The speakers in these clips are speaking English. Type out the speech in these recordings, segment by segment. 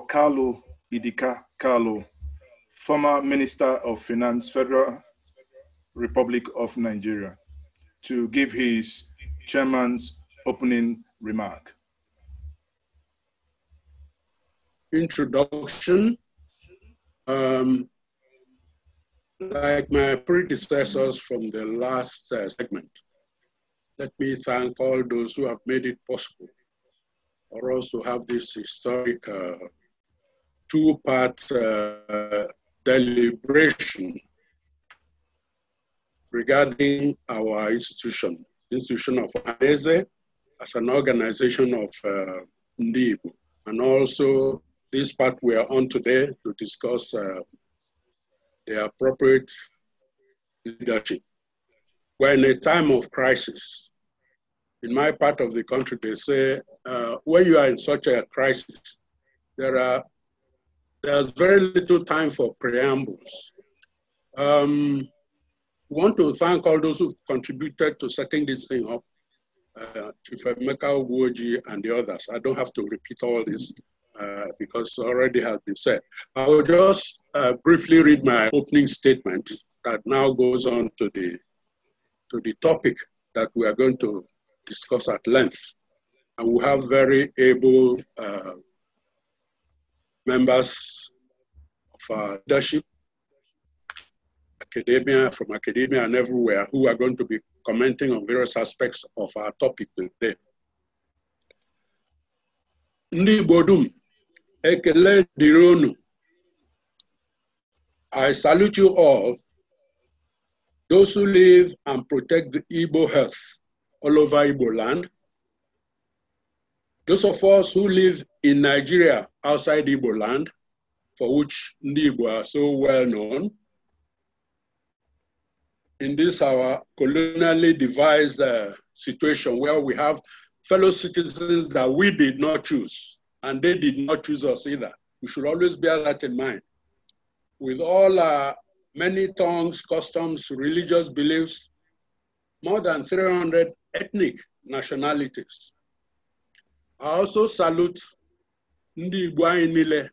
Carlo Idika Carlo, former Minister of Finance, Federal Republic of Nigeria, to give his chairman's opening remark. Introduction. Um, like my predecessors from the last uh, segment, let me thank all those who have made it possible for us to have this historic uh, two part uh, deliberation regarding our institution, institution of ANESE as an organization of uh, And also this part we are on today to discuss uh, the appropriate leadership. We're in a time of crisis. In my part of the country, they say, uh, when you are in such a crisis, there are there's very little time for preambles. Um, want to thank all those who've contributed to setting this thing up, uh, Chief Emeka Uwoji and the others. I don't have to repeat all this uh, because already has been said. I will just uh, briefly read my opening statement that now goes on to the, to the topic that we are going to discuss at length. And we have very able uh, members of our leadership, academia, from academia and everywhere, who are going to be commenting on various aspects of our topic today. Ndị Igbo ekele I salute you all, those who live and protect the Igbo health all over Igbo land, those of us who live in Nigeria outside Igbo land, for which Ibo are so well known, in this our colonially devised uh, situation where we have fellow citizens that we did not choose, and they did not choose us either. We should always bear that in mind. With all our many tongues, customs, religious beliefs, more than 300 ethnic nationalities. I also salute Ndi Nile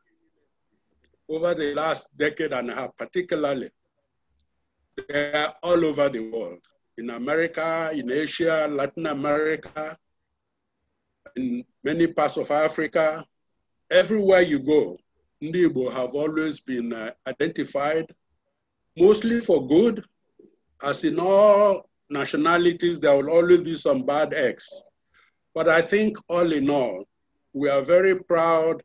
over the last decade and a half, particularly. They are all over the world, in America, in Asia, Latin America, in many parts of Africa. Everywhere you go, Ndi Igbo have always been uh, identified, mostly for good, as in all nationalities, there will always be some bad eggs. But I think all in all, we are very proud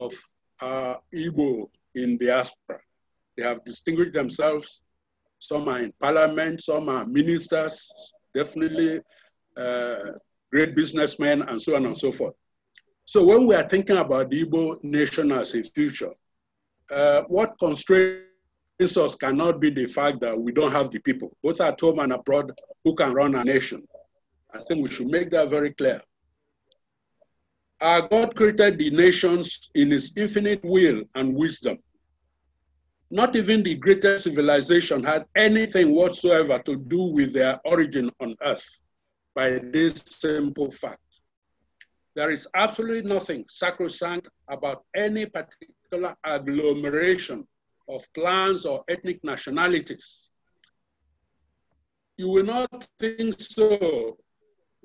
of our Igbo in diaspora. They have distinguished themselves. Some are in parliament, some are ministers, definitely uh, great businessmen, and so on and so forth. So when we are thinking about the Igbo nation as a future, uh, what constrains us cannot be the fact that we don't have the people, both at home and abroad, who can run a nation. I think we should make that very clear. Our God created the nations in his infinite will and wisdom. Not even the greatest civilization had anything whatsoever to do with their origin on earth by this simple fact. There is absolutely nothing sacrosanct about any particular agglomeration of clans or ethnic nationalities. You will not think so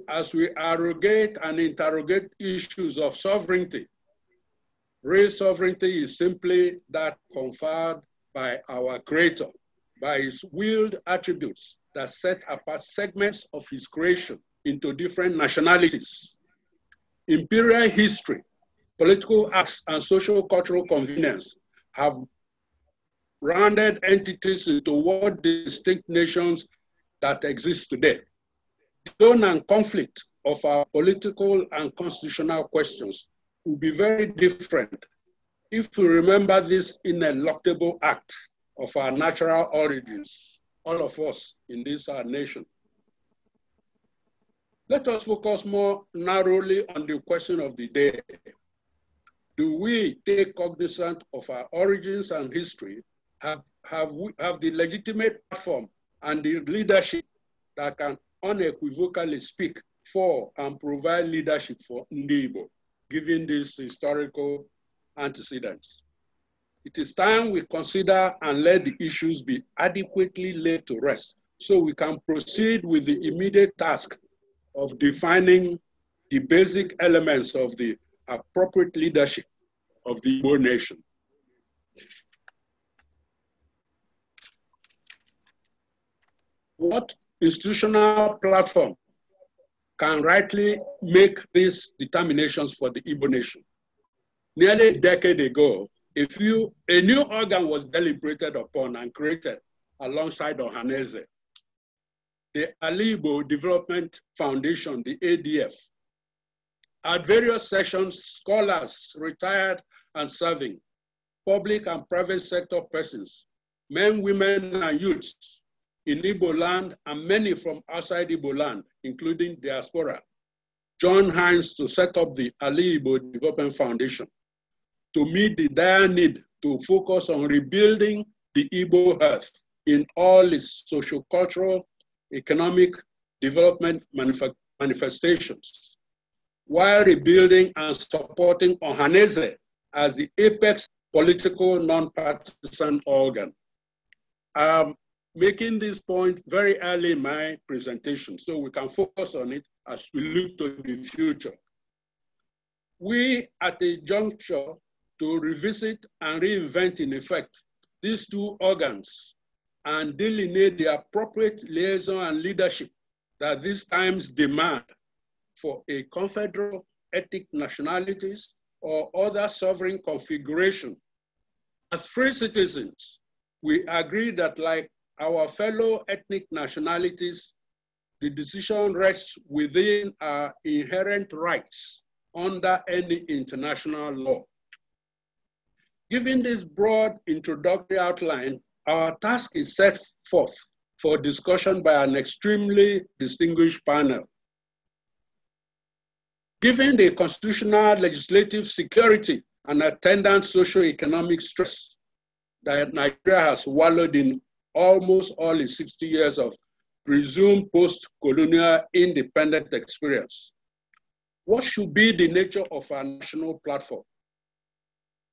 as we arrogate and interrogate issues of sovereignty. Real sovereignty is simply that conferred by our Creator, by His willed attributes that set apart segments of His creation into different nationalities. Imperial history, political acts, and social cultural convenience have rounded entities into what distinct nations that exist today tone and conflict of our political and constitutional questions will be very different if we remember this ineluctable act of our natural origins, all of us in this our nation. Let us focus more narrowly on the question of the day. Do we take cognizance of our origins and history? Have, have, we, have the legitimate platform and the leadership that can unequivocally speak for and provide leadership for Ndibo, given these historical antecedents. It is time we consider and let the issues be adequately laid to rest so we can proceed with the immediate task of defining the basic elements of the appropriate leadership of the Igbo nation. What institutional platform can rightly make these determinations for the Igbo nation. Nearly a decade ago, a, few, a new organ was deliberated upon and created alongside Ohaneze. The Alibo Development Foundation, the ADF. At various sessions, scholars, retired and serving, public and private sector persons, men, women, and youths in Igbo land and many from outside Igbo land, including diaspora, John Hines to set up the Ali Igbo Development Foundation to meet the dire need to focus on rebuilding the Igbo health in all its social, cultural economic development manif manifestations, while rebuilding and supporting Ohaneze as the apex political non-partisan organ. Um, making this point very early in my presentation so we can focus on it as we look to the future. We at a juncture to revisit and reinvent in effect these two organs and delineate the appropriate liaison and leadership that these times demand for a confederal ethnic nationalities or other sovereign configuration. As free citizens, we agree that like our fellow ethnic nationalities, the decision rests within our inherent rights under any international law. Given this broad introductory outline, our task is set forth for discussion by an extremely distinguished panel. Given the constitutional, legislative security, and attendant socio-economic stress that Nigeria has wallowed in almost all his 60 years of presumed post-colonial independent experience. What should be the nature of our national platform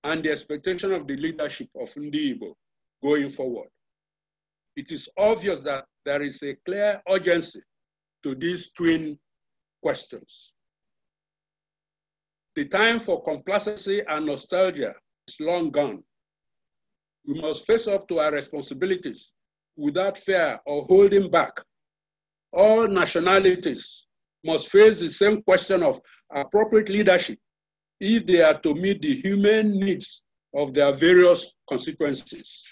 and the expectation of the leadership of Ndiibo going forward? It is obvious that there is a clear urgency to these twin questions. The time for complacency and nostalgia is long gone. We must face up to our responsibilities without fear or holding back. All nationalities must face the same question of appropriate leadership if they are to meet the human needs of their various constituencies.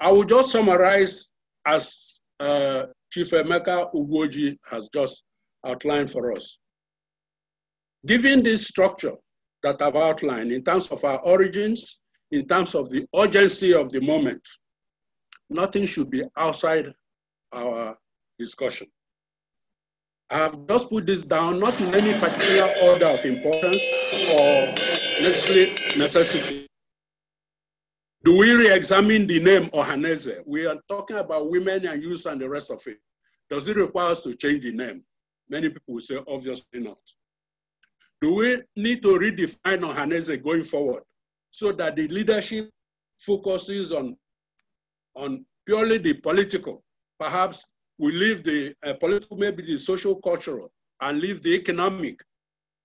I will just summarize as uh, Chief Emeka Ugoji has just outlined for us. Given this structure, that I've outlined in terms of our origins, in terms of the urgency of the moment. Nothing should be outside our discussion. I've just put this down, not in any particular order of importance or necessarily necessity. Do we re-examine the name Ohaneze? We are talking about women and youth and the rest of it. Does it require us to change the name? Many people will say, obviously not. Do we need to redefine Ohanese going forward so that the leadership focuses on, on purely the political? Perhaps we leave the uh, political, maybe the social, cultural, and leave the economic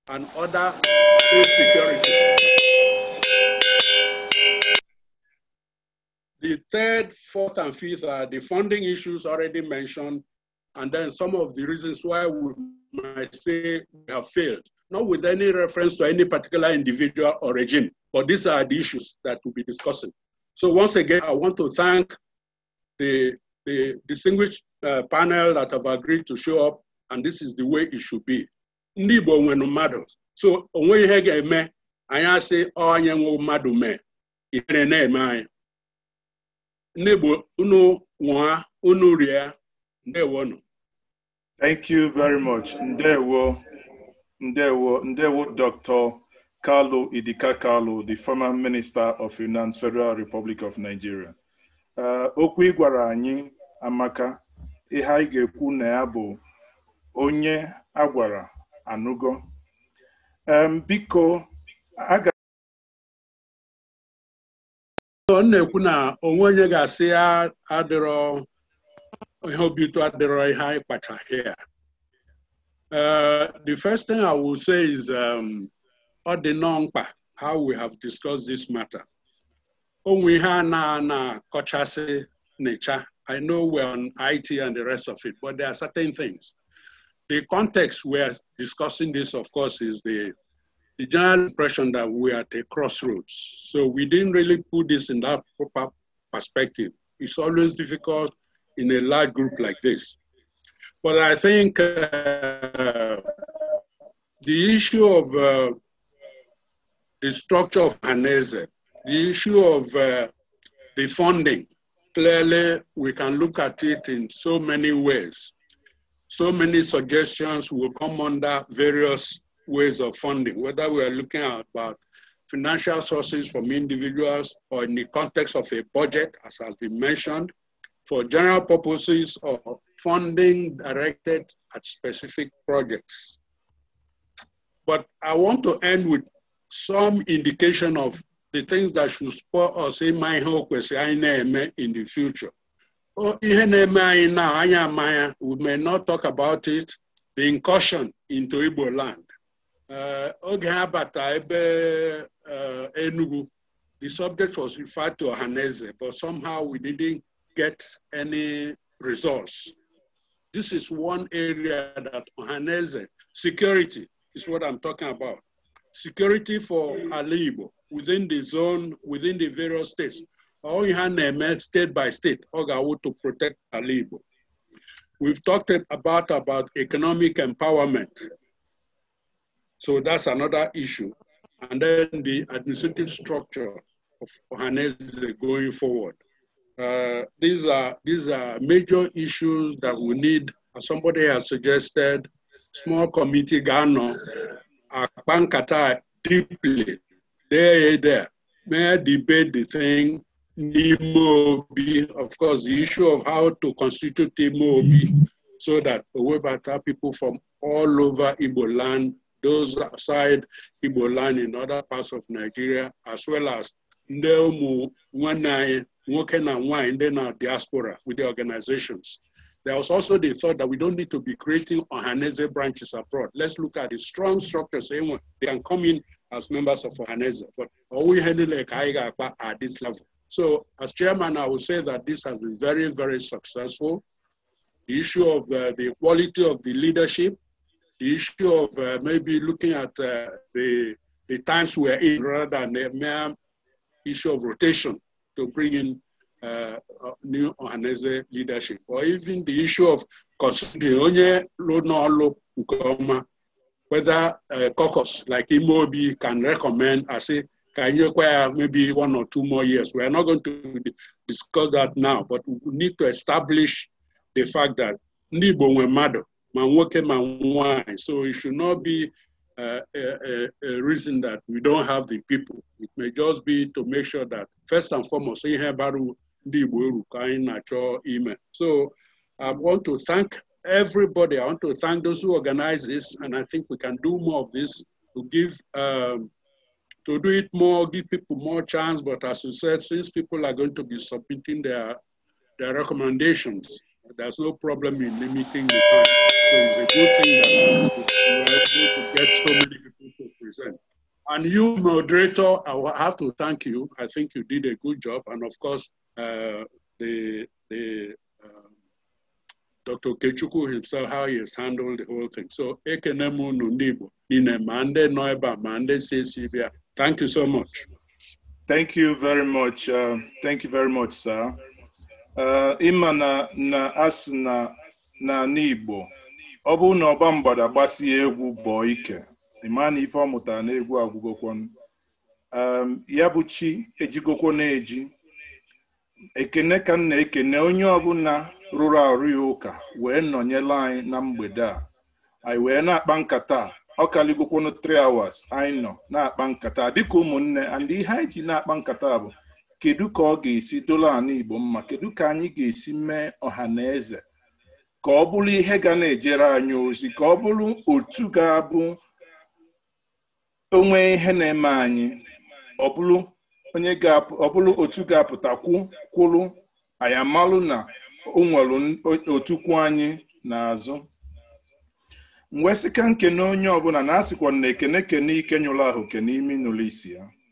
and other food security. The third, fourth, and fifth are the funding issues already mentioned, and then some of the reasons why we might say we have failed not with any reference to any particular individual or regime. But these are the issues that we'll be discussing. So once again, I want to thank the, the distinguished uh, panel that have agreed to show up, and this is the way it should be. Ndị Igbo nwere So onwe ihe ga-eme, anyị asị onye madu mmadụ mee, ihere na-eme anyị. wa uno unu nwa unu rie, Thank you very much. Ndewo. Ndewo, Ndewo Dr. Kalu Idika Kalu, the former Minister of Finance, Federal Republic of Nigeria. Uh, okwu ị gwara anyị amaka ihe anyị ga-ekwu na ya bụ onye a gwara anụgo. Um, biko, aga ọ na-ekwu na onwe onye ga-asị adịrọ ihe obi ụtọ adịrọ ihe anyị kpachaghị ya Uh, the first thing I will say is um, how we have discussed this matter. We have na na nature. I know we're on IT and the rest of it, but there are certain things. The context we are discussing this, of course, is the, the general impression that we are at a crossroads. So we didn't really put this in that proper perspective. It's always difficult in a large group like this. But I think uh, the issue of uh, the structure of Hanese, the issue of uh, the funding, clearly we can look at it in so many ways. So many suggestions will come under various ways of funding, whether we are looking at about financial sources from individuals or in the context of a budget, as has been mentioned, for general purposes or funding directed at specific projects. But I want to end with some indication of the things that should support us in my hope in the future. Oh, we may not talk about it, the incursion into Igbo land. Uh, oge ebe uh, the subject was referred to Haneze, but somehow we didn't get any results. This is one area that Ohanese. security is what I'm talking about. Security for Alibo within the zone, within the various states. Ohaneme state by state, Ogawu to protect Alibo. We've talked about, about economic empowerment. So that's another issue. And then the administrative structure of Ohanese going forward. Uh, these are these are major issues that we need. As somebody has suggested, small committee Ghana, Akpankata deeply, there, there, may I debate the thing. Imobi, of course, the issue of how to constitute Imobi so that Owebata people from all over Igbo land, those outside Igbo land in other parts of Nigeria, as well as ndị ụmụ nwanne anyị nwoke na nwanyị ndị na diaspora with the organizations. There was also the thought that we don't need to be creating Ohaneze branches abroad. Let's look at the strong structures. Anyone, they can come in as members of Ohaneze, but all we handle like at this level. So as chairman, I would say that this has been very, very successful. The issue of uh, the quality of the leadership, the issue of uh, maybe looking at uh, the, the times we're in rather than the mere issue of rotation to bring in uh, uh new Ohaneze leadership, or even the issue of considering whether a uh, caucus like Imobi can recommend I say, can you acquire maybe one or two more years. We are not going to discuss that now, but we need to establish the fact that Nibo Wemado, man Manwai, so it should not be uh, a, a, reason that we don't have the people. It may just be to make sure that first and foremost, So I want to thank everybody. I want to thank those who organize this, and I think we can do more of this to give um, to do it more, give people more chance. But as you said, since people are going to be submitting their their recommendations, there's no problem in limiting the time. So it's a good thing that get so many people to present. And you, moderator, I have to thank you. I think you did a good job. And of course, uh, the, the um, Dr. Kechuku himself, how he has handled the whole thing. So, Ekenemu Nundibo, Ninemande Noiba Mande CCBA. Thank you so much. Thank you very much. Uh, thank you very much, sir. Uh, ima na, na as na, na Nibo. ọ bụrụ na ọba mgbada gbasie egwu bọọ ike ịma na ife ọ mụtara na egwu agwụgokwon ya bụ chi ejigokwo na-eji ekene ka m na-ekene onye ọbụla rụrụ arụ ya ụka wee nọnyela anyị na mgbede a anyị wee na-akpa nkata ọ kaligokwonu 3 hours anyị nọ na-akpa nkata dịka ụmụnne and ihe anyị ji na-akpa nkata bụ kedu ka ọ ga-esi dola ala Igbo mma kedu ka anyị ga-esi mee ọha na eze ka ọ bụrụ ihe ga na-ejere anyị ozi ka ọ bụrụ otu ga-abụ onwe ihe na-eme anyị ọ bụrụ otu ga apụta kwụrụ anyị amalụ na o nwere otukwu anyị n'azụ mgbe e sika nkene onye ọbụla na-asịkwa na ekene kene ike nyụrụ ahụ kene imi n'ụlọ isi ya